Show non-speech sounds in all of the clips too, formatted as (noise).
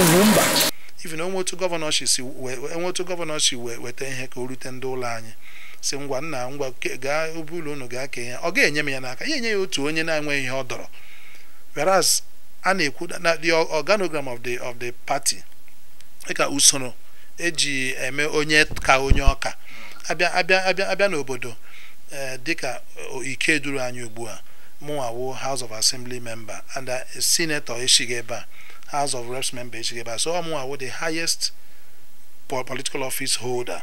ụmụ mba even onweotu gọvanọ shi si enweotu gọvanọ shi wee weta ihe ka o rute ndị ụlọ anyị si ngwa nna ngwa gaa obe ụlọ unu gaa kee ya ọ ga-enye m ya n'aka ya enye ya otu onye na-enweghị ihe ọ dọrọ whereas a na-ekwu na the organogram of the of the party dịka usoro eji eme onye ka onye ọka abịa abịa abịa abịa n'obodo eh, dịka ike duru anyị ugbu a mụnwawo house of assembly member and senator esighị ebe a House of Reps member Echigeba so ọmụnwa wụ the highest political office holder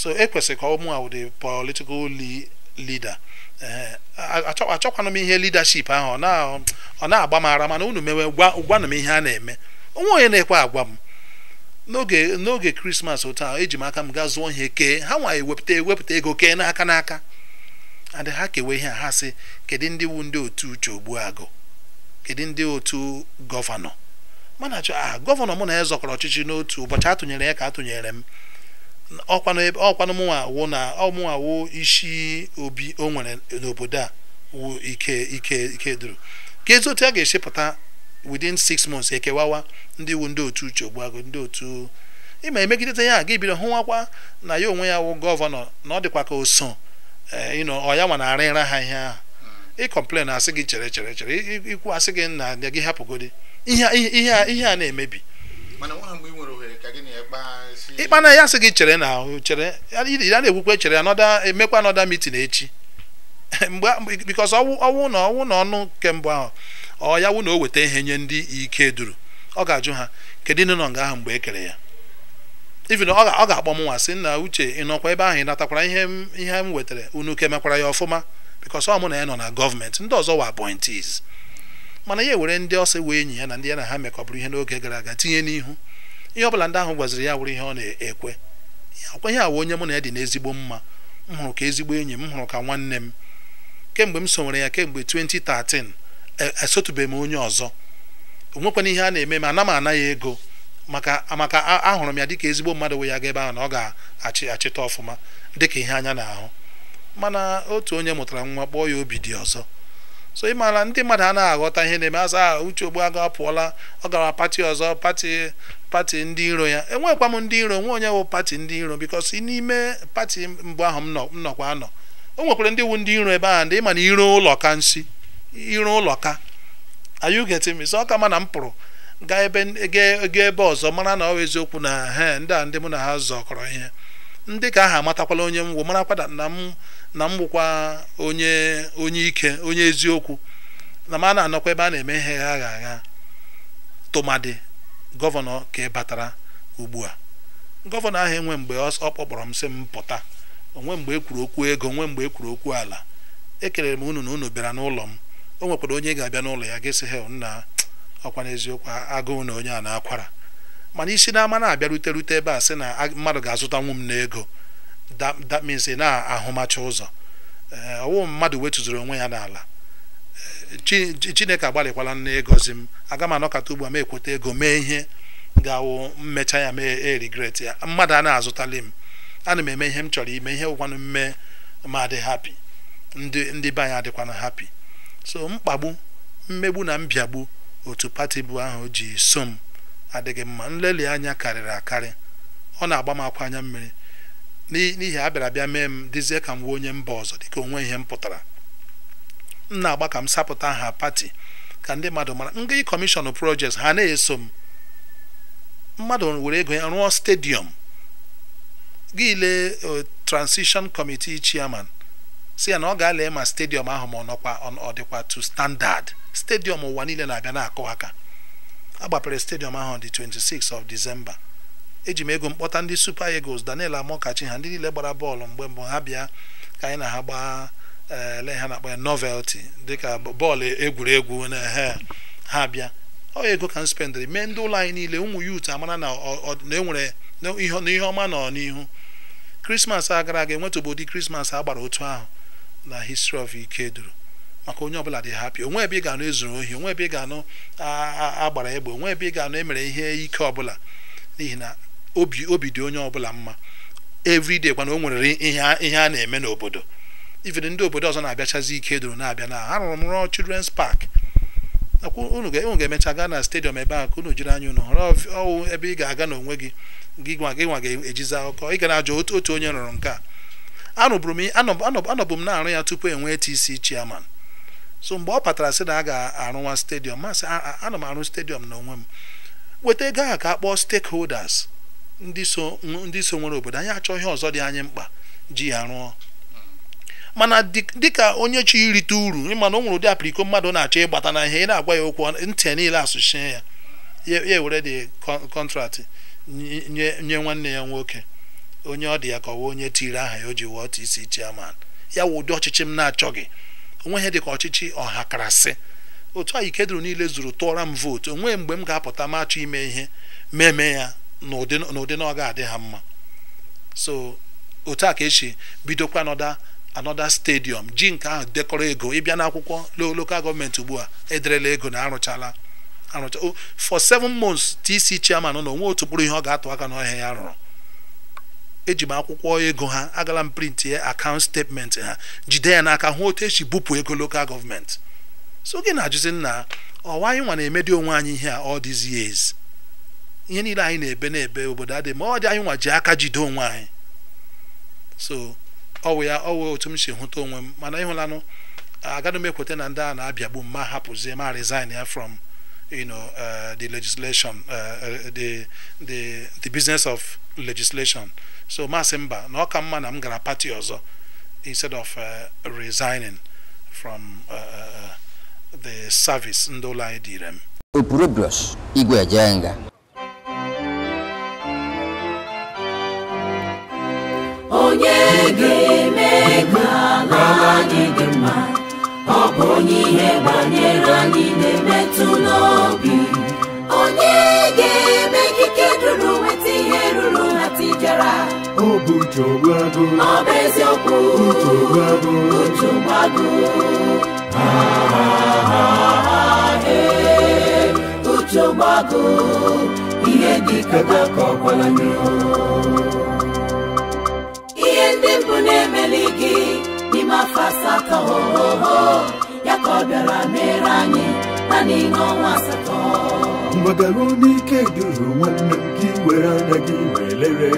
so ekwesịrị ka ọmụnwa wụ the political leader eh, achọkwana m ihe leadership ahụ ọ na-agba m ara mana unu mewe gwanụ m ihe a na-eme onwe onye na-ekwe agwa m n'oge n'oge krismas otu ahụ eji m aka m ga zụọ ihe kee ha nwa ewepụta ewepụta ego kee n'aka n'aka and ha kewe ihe ha si kedu ndị wu ndị otu uche ogbu agụ kedu ndị otu gọvanọ mana achọ aha gọvanọ mụ na ya zọkọrọ ọchịchị n'otu ụbọchị atụnyere ya ka atụnyere m ọkwanụ mụnwa na ọmụnwa awụ isi obi o nwere n'obodo a wụ ike ike ike duru ka ezi otu a ga-esi pụta within six months ekewawa ndị wu ndị otu uche ogbuago ndị otu ịma emegidete ya ga ebiro hụwakwa na ya onwe ya wụ gọvanọ na ọ dịkwa ka oso so eh, ọ ya nwa na-arịra ha ihe ahụ ịkọmplen asị gị chere chere chere ikwu asị gị na gị hapụgodi ihe a na-emebi ịkpa na ya sị gị chere na ahụ chere ya na-ekwukwe chere ya emekwa anọda mitin echi (laughs) mgbe bikos ọwụ na ọwụ na ọnụ kemgbe ahụ ọ ya wụ na o weta ihe nye ndị ike duru ọ ga-ajụ ha kedu ịnụ nọ nga ahụ mgbe e kere ya ivi ọ ga-akpọ m nwa sị nna uche ịnọkwa ebe ahụ ị natakwara ihe m ihe m wetara unu kemekwara ya ọfụma bikos ọ mụ na ya nọ na gọọmenti ndị ọzọ wa appointees mana ya ewere ndị ọsọ wee enyi ya na ndị ya na ha mekọbụrụ ihe n'oge gara aga tinye n'ihu ihe ọbụla ndị ahụ gwaziri ya wụrụ ihe ọ na-ekwe akwa ihe awa onye mụ na ya dị n'ezigbo mma m hụrụ ka ezigbo enyi m hụrụ ka nwanne m kemgbe m sonwere ya kemgbe 2013 e, esotubeghị m onye ọzọ onwekwana ihe a na-eme ma ana m ana ya ego maka maka ahụrụ m ya dịka ezigbo mmadụ wee ya ga ebe ahụ na ọ ga-achị achịta ọfụma dịka ihe anya na ahụ mana otu onye mụtara nwa kpọọ ya obi dị ọzọ so ị maara ndị mmadụ anaghị aghọta ihe na-eme azụ aha uche aga apụọla ọ gara pati ọzọ pati pati ndị iro ya enwekwa m ndị iro nwe onye wụ pati ndị iro bikos n'ime pati mbụ ahụ m nọkwa anọ o nwekwara ndị wu ndị iro ebe ahụ ndị ịma na iro ụlọ ka nsi iro ụlọ ka ayugetimisi ọ ka ma na m pụrụ gaa ebe gaa ebe ọzọ mara na ọ eziokwu na he ndị a ndị mụ na ha zọkọrọ ihe ndị ka aha amatakwala onye m wụ marakwada na m na m onye onye ike onye eziokwu na m a na-anọkwa ebe a na-eme ihe ha agha agha tụmadị gọvanọ ka ị batara ugbu a gọvanọ ahụ enwe mgbe ọ kpọkpọrọ m sị m pụta onwe mgbe ekwuru okwu ego onwe mgbe ekwuru okwu ala ekelere m unu na unu bịara n'ụlọ m o nwekwara onye ga-abịa n'ụlọ ya gịsị hel nna ọkwa n'eziokwu agụụ na onye a na-akwara mana isi n'ama na-abịa rute rute ebe a sị na mmadụ ga-azụtanwu m n'ego that, that means ị na-ahụmacha ụzọ eh, ọwụ mmadụ wetụzuru onwe ya n'ala eh, chineke agbalịkwala nne ịgọzi m aga m anọkata ugbu a m ekweta ego mee ihe ga-awụ mmecha ya mee erigret ya mmadụ a na-azụtali m ana m eme ihe m chọrọ ime ihe gwụkwanụ mme ma adị hapi ndị ndị be anyị adịkwana hapi so mkpagbu mmegbu na mbiagbu otu pati bụ ahụ ji so m adịghị mma nleli anya karịrị akarị ọ na-agba m akwa anya mmiri n'ihi a bịara bịa mee m dịzie ka m wee onye mba ọzọ dịka onwe ihe m pụtara m na-agba ka m sapụta ha pati ka ndị mmadụ mara ndị kọmishọn projekti ha na-eso m mmadụ were ego ya rụọ stediọm gị lee kọmitii e, committee chairman si ya na ọ ga-alee ma stediọm ahụ ma ọ nọkwa ọ dịkwa tu standard stediọm ụwa niile na-abịa na-akụ aka agbapere stediọm ahụ dị 26 of December eji m ego mkpọta ndị supa egos Daniel Amokachi ha ndị niile gbara bọọlụ mgbe mbụ ha bịa ka anyị na ha gbaa ele eh, ha na-akpa ya novelty dịka bọọlụ egwuregwu na eh, ha bịa ọ ego ka m mee ndị ụlọ anyị niile ụmụ yut amara na enwere ihe ọma nọ n'ihu krismas a gara aga enwetụbụ ụdị krismas a gbara otu ahụ na history of Ikeduru maka onye ọbụla dị hapi onwe ebe ị ga-anụ ezuru ohi onwe ebe ị ga-anụ agbara egbe onwe ebe ị ga-anụ emere ihe ike ọbụla n'ihi na obi obi dị onye ọbụla mma everyday kwana o nwere ihe a na-eme n'obodo ifere ndị obodo ọzọ na-abịachazi ike doro na-abịa na rụrụ m rụọ children's park unu ga-emecha gaa na stadium ebe ahụ ka unu jiri anya unu họrọ ọwụ ebe ị ga-aga n'onwe gị gị nwa gị nwa ga-ejizi akụkọ ị ga na otu otu onye rụrụ nke a anọbụ m na-arụ ya tupu enwee TC chairman so mgbe ọ patara sị na a ga-arụwa stadium masị ana m arụ stadium n'onwe m weta ego ahụ ka a kpọọ stakeholders ndị so nwere obodo anyị achọghị ọzọ dị anyị mkpa ji ya rụọ mana dịka onye chi irite uru ịmana o nwere ụdị apiriko mmadụ na-achọ ịgbata na ihe ị na-agwa ya okwu ntị niile asụchie ya ya ewere dị kọntraktị nye nwanne ya nwoke onye ọ dị ya ka onye tiri aha ya o ji wụọ isi chairman ya wụ ụdị ọchịchị m na-achọghị onweghị dị ka ọchịchị sị otu anyị kedụrụ niile zuru tụọra m vootu onweghị mgbe m ga-apụta m achọ ime ihe meme ya n'ụdị na ọ ga-adị ha mma so otu a ka esi bidokwa anọda anoda stadium ji nke ahụ dekọrọ ego ịbịa n'akwụkwọ lokal gọọmenti ugbu a ederela ego na arụchala arụcha for seven months tc chairman na onwe otu kpụrụ ihe ọ ga-atụ aka n'ọhịa ya rụrụ eji m akwụkwọ ego ha agala m print ya akaụnt statement ha jide ya n'aka hụ otu esi bupụ ego lokal gọọmenti so gị na-ajụzi nna ọwa anyị nwa na-emedi onwe anyị ihe a all these years ihe niile anyị na-ebe na-ebe obodo adịghị ma ọ dị anyị nwa ji aka jide onwe anyị so ọwụ ya ọwụ otu m si hụta onwe m mana ịhụlanụ agaghị m ekweta na ndị a na-abịagbu m ma hapụzie ma resign ya from you uh, the legislation uh, uh the, business of legislation so masị mba na ọ ka mma na m gara pati ọzọ instead of uh, resigning from uh, the service ndị ụlọ anyị dịrem m Igwe Ejenga ga-eme ka ala anyị dị mma ọ bụ onye ihe banyere anyị na-emetụ n'obi onye ga-eme ikike duru nweta ihe ruru na tijara ọ bụ nchogbu ọ bụ eziokwu nchogbu agụ uche gbagụ ihe dị ka ka ọ gwara na-emeli gị n'ime afọ asatọ ya ka ọ bịara mere anyị na n'ime ọnwa asatọ mgbadaru n'ike duru nwanne m gị were anya gị wee lere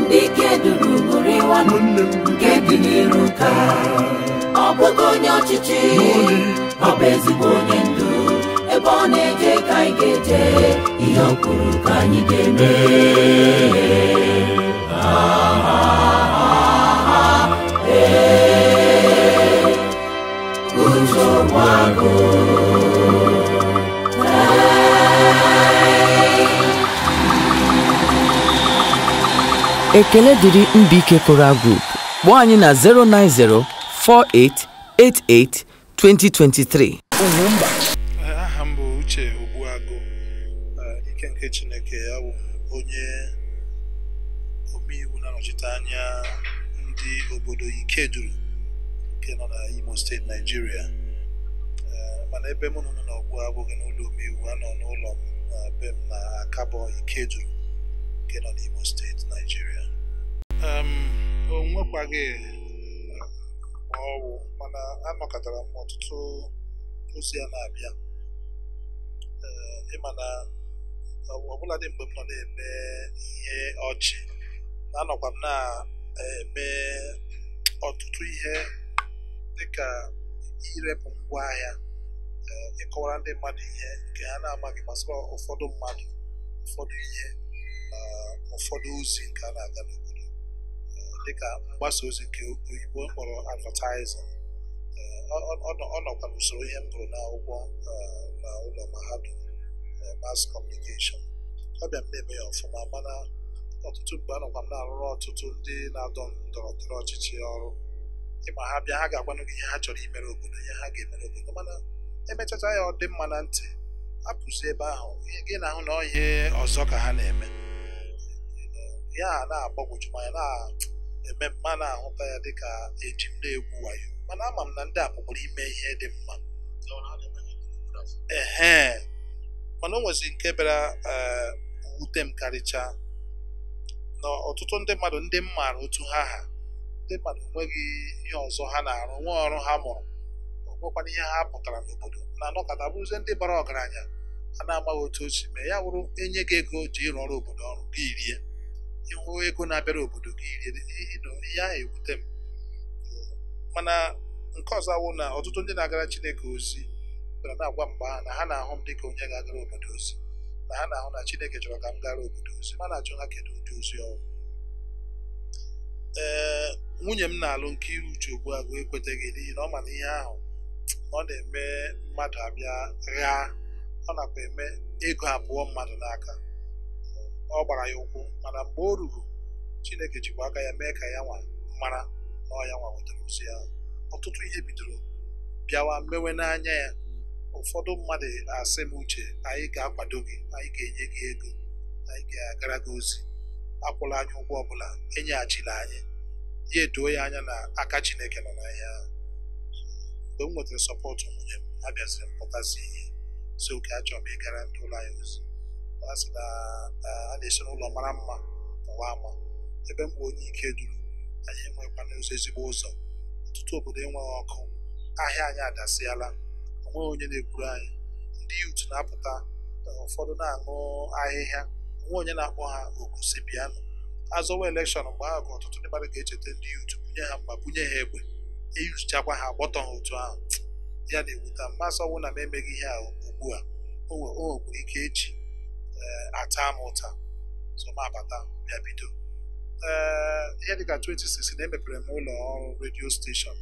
ndị ike duru bụrụ ịwa nwanne m nke dị n'iru ka ọ bụghị onye ọchịchị ọ bụ ezigbo onye ndu ebe ọ na-eje ka anyị ga-eje ihe ọ kwuru ka anyị ga-eme ekele dịrị Mbaike Choral Group kpọọ anyị na 090 4888 2023 aha m bụ Uche Ogbuagụ ike nke Chineke ya bụ onye omeiwu na-anọchite ndị obodo Ikeduru nke nọ na Imo steeti Naijiria mana ebe m nọ n'ọgwụ abụghị n'ụlọ omeiwu nọ n'ụlọ m na be m na Akabọ Ikeju nke nọ n'Imo steeti Naijiria o nwekwaghị ọwụ mana anọkọtara m ọtụtụ ozi a na-abịa ịma na ọbụladị mgbe m nọ na-eme ihe ọchị anọkwa m na-eme ọtụtụ ihe dịka irepụ ngwaahịa ịkọwara ndị mmadụ ihe nke ha na-amaghị gbasara ụfọdụ mmadụ ụfọdụ ihe na ụfọdụ ozi nke a na-aga n'obodo eh, dịka mgbasa ozi nke oyibo kpọrọ advertising eh, ọ nọkwa n'usoro ihe m gụrụ n'akwụkwọ eh, na ụlọ mahadum mass communication ọ bịa m na-eme ya ọfụma mana ọtụtụ mgbe anọkwa m na-arụrụ ọtụtụ ndị na-adọ ndọrọ ọchịchị ọrụ ịma ha bịa ha ga-agwanụ gị ihe ha chọrọ imere obodo ihe ha ga-emere obodo mana emetụta ya ọ dị mma na ntị apụzi ebe ahụ ihe gị na-ahụ na ọhịa ọzọ ka ha na-eme ya na-agbagwoju anya na-eme mma na-ahụta ya dịka eji m na-egwu wayo mana ama m na ndị a ime ihe dị mma ee mana o nwezi nke bịara eh, wute m karịchaa na ọtụtụ ndị mmadụ ndị m maara otu ha ha ndị mmadụ enweghị ihe ọzọ ha na-arụ nwa ọrụ ha mụrụ nwekwana ihe ha pụtara n'obodo na-anọkọta bụzie ndị bara ọgaranya a na-amaghị otu o mee ya wụrụ enye gị ego ji ịrụ ọrụ obodo ọrụ gị rie ịhụ ego na-abịara obodo gị e, e, ihe ahụ ewute m mana nke ọzọ awụ na ọtụtụ ndị na-agara Chineke ozi bịara na-agwa mgbe ha na ha na-ahụ m dịka onye ga-agara obodo ozi na ha na-ahụ na Chineke chọrọ ka m gara obodo ozi mana na ha kedu ụdị ozi ọrụ. ee nwunye m na-alụ nke uche ugbu a ekweteghị n'ihi na ọ ma ihe ahụ ọ na-eme mmadụ abịa rịa ọ nakwa eme ego abụọ mmadụ n'aka ọ gbara ya ụkwụ mana mgbe o ruru Chineke jikwa aka ya mee ka ya nwa mara na ọ ya nwa wetara ozi ya ọtụtụ ihe bidoro bịawa mewe n'anya ya ụfọdụ mmadụ asị m uche anyị ga-akwado gị anyị ga-enye gị ego anyị ga-agara gị ozi akwụla anyị ụgwọ ọbụla enyeghachila anyị ya edoo ya anya na aka Chineke nọ na ya mgbe m nwetara sọpọtụ nwunye m ha bịaziri m ihe so oke achọrọ m ịgara ndị ụlọ anyị ozi ha sị na a na-esi n'ụlọ mara mma ụwa ama ebe mgbe onye ike duru anyị enwekwana n'ụzọ ezigbo ụzọ ọtụtụ obodo enweghị ọkụ ahịa anyị adasịala onweghị onye na-egburu anyị ndị yut na-apụta ụfọdụ na-aṅụ ahịhịa onwe onye na-akpọ ha oku si azọwa elekshọn mgbe ahụ ka ọtụtụ ndị mmadụ ga-echeta ndị yut bunye ha mma bunye ha egbe eyuzichakwa ha gbọtọ ha otu ahụ ya na-ewuta mmasị ọnwụ na m emeghị ihe a ugbu a o nwekwara ike eji eh, ata m ụta sọmabata bịa bido ee eh, ihe dịka 2016 na emepere m ụlọ ọrụ redio steshọn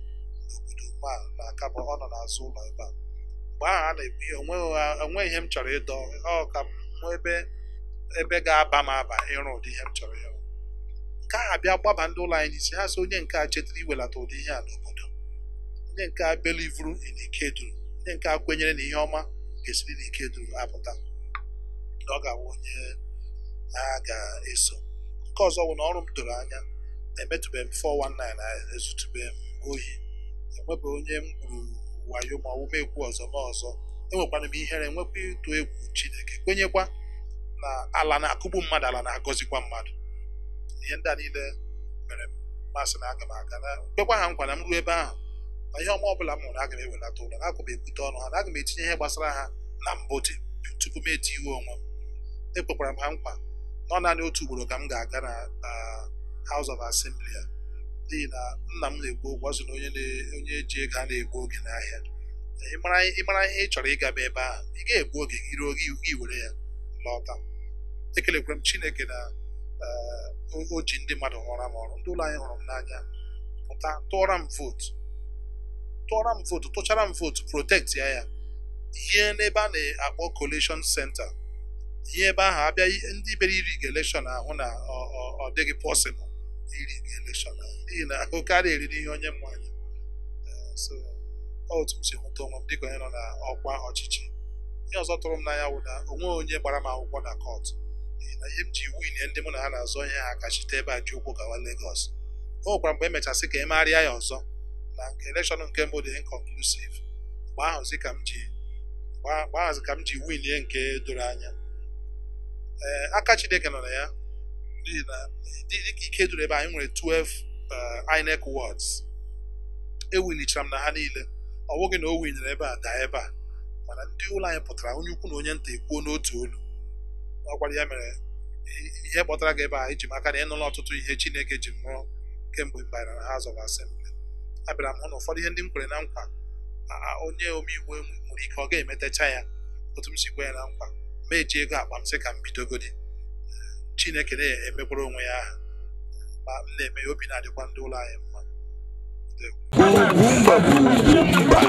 n'obodo ma na akabọ ọ nọ n'azụ ụlọ ebe a mgbe ahụ a na-ebu ihe onwe ihe m chọrọ ịdọ ọ ka m nwee ebe ebe ga-aba m aba ịrụ ụdị ihe m chọrọ ịrụ nke a bịa gbaba ndị ụlọ anyị n'isi ha so onye nke a chetara iwelata ụdị ihe a n'obodo ndị nke a belivuru n'ike ndị nke a kwenyere na ihe ọma ga-esiri n'ike apụta na ọ ga-awụ onye a ga-eso nke ọzọ bụ na ọrụ m doro anya emetụbeghị m 419 ezutubeghị m ohi enwebeghị onye m gwuru wayo ma ọwụma egwu ọzọ ma ọzọ enwekwana m ihere enwekwa ịtụ egwu Chineke kwenyekwa na ala na-akụgbu mmadụ ala na-agọzikwa mmadụ ihe ndị a niile mere mmasị na aga m aga na kwekwa ha nkwa na m ruo ebe ahụ na ihe ọma ọbụla m hụrụ aga m ewelata ụlọ aga m ebute ọnụ ha na aga m etinye ihe gbasara ha na mbụ dị tupu m eti iwe onwe m ekwekwara m ha nkwa nọ naanị otu ugboro ka m ga-aga na House of Assembly ya n'ihi na nna m na-egbu ụgwọ ọ sị na onye ji ego a na-egbu oge n'ahịa ịmara ihe ị chọrọ ịgaba ebe ahụ ị ga-egbu oge gị ruo gị were ya lọta ekelekwara m Chineke na eh, o ji ndị mmadụ hụra m ọrụ ndị ụlọ anyị hụrụ m n'anya pụta tụọra m vootu tụọra m votu tụchara m votu protect ya ya ihe n'ebe a na-akpọ collation center ihe ebe ahụ abịa ndị bere iri elekshọn ahụ na ọ dịghị pọsịbụl iri elekshọn n'ihi na ahụ karịa eriri ihe onye mmanya eh, so otu m si hụta onwe m dịka onye nọ na ọkwa ọchịchị ihe ọzọ tụrụ m n'anya wụ na onwe onye gbara m akwụkwọ na kọt n'ihi na ihe m ji winye ndị mụ na ha na azụ onye ha kachite ebe a ji ụkwụ gawa Legọs o nwekwara mgbe emechasị ka emegharịa ya ọzọ na nke elekshọn nke mbụ dị inconclusive mgbe ahụzi ka m ji mgbe ka m ji winie nke doro anya ee eh, aka Chineke nọ na ya dịka ike doro ebe anyị nwere 12 eh, INEC wards ewilichara m na ha niile ọ bụghị na o winyere ebe a daa ebe a mana ndị ụlọ anyị pụtara onye ukwu na onye nta ekwuo n'otu olu ọkwara ya mere ihe kpọtara gị ebe a iji maka na ị nụla ọtụtụ ihe Chineke ji mụọ kemgbe mgbe na House of Assembly abịara m hụ na ụfọdụ ihe ndị m kwere na nkwa onye omeiwu nwere ike ọ ga-emetacha ya otu m si kwe ya na nkwa ma eji ego akpa m sị ka m bidogodi chineke na-emekwara onwe ya aha ma m na-eme ya obi na-adịkwa ndị ụlọ anyị mma